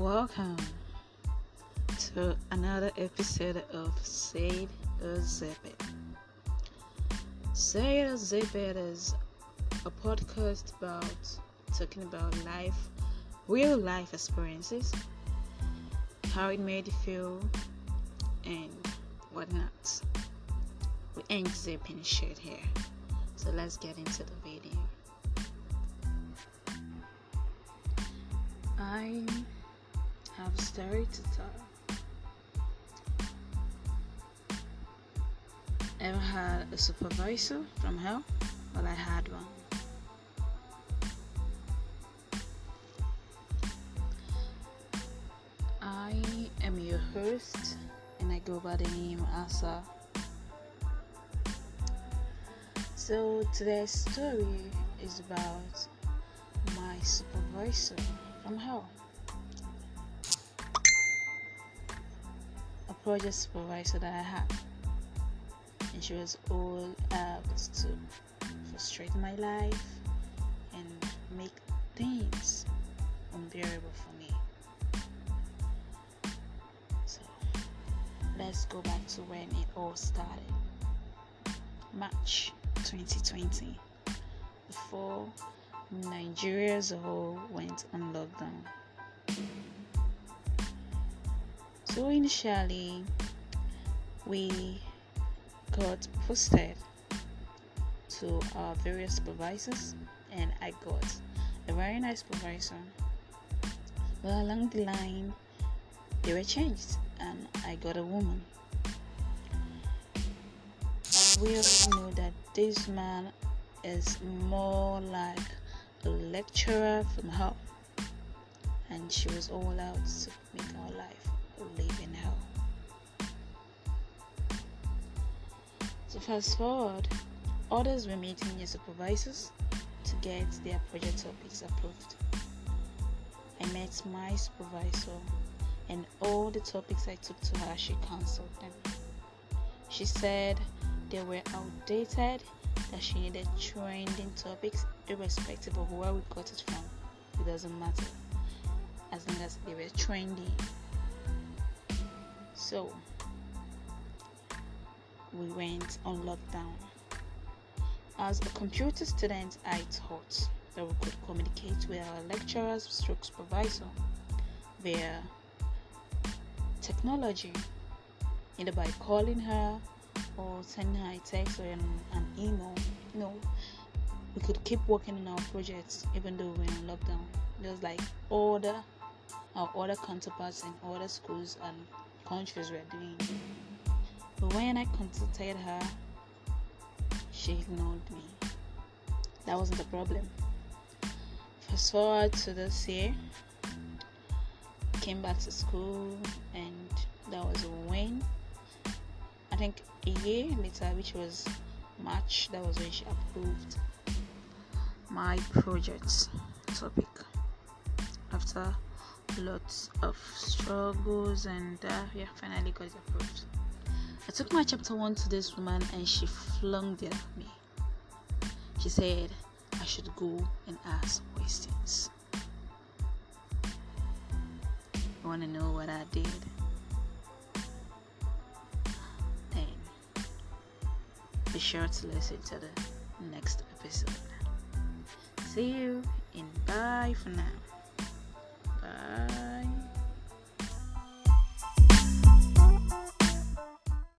Welcome to another episode of Say or Zip It. Say is a podcast about talking about life, real life experiences, how it made you feel, and whatnot. We ain't zipping shit here. So let's get into the video. I'm have story to tell ever had a supervisor from hell well i had one i am your host and i go by the name asa so today's story is about my supervisor from hell project supervisor that I had. And she was all out uh, to frustrate my life and make things unbearable for me. So let's go back to when it all started. March 2020. Before Nigeria's whole went on lockdown. So initially, we got posted to our various supervisors, and I got a very nice supervisor. But along the line, they were changed, and I got a woman. We all know that this man is more like a lecturer from home, and she was all out to make our life would in hell. So fast forward, others were meeting their supervisors to get their project topics approved. I met my supervisor and all the topics I took to her, she cancelled them. She said they were outdated, that she needed trending topics irrespective of where we got it from. It doesn't matter as long as they were trendy So we went on lockdown. As a computer student, I thought that we could communicate with our lecturers, stroke supervisor via technology, either by calling her or sending her a text or an, an email. You know, we could keep working on our projects even though we're in lockdown, just like all the our other counterparts in other schools and countries were doing. But when I consulted her, she ignored me. That wasn't the problem. Fast forward to this year, came back to school, and that was when I think a year later, which was March, that was when she approved my project topic after lots of struggles and uh, yeah finally got it approved i took my chapter one to this woman and she flung it at me she said i should go and ask questions you want to know what i did then be sure to listen to the next episode see you and bye for now Bye.